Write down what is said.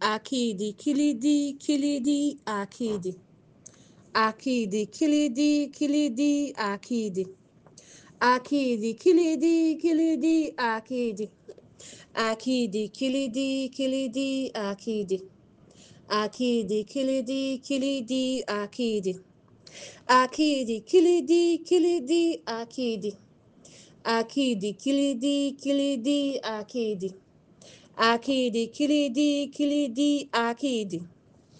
akidi kilidi kilidi akidi akidi akidi akidi kilidi kilidi akidi akidi kilidi kilidi akidi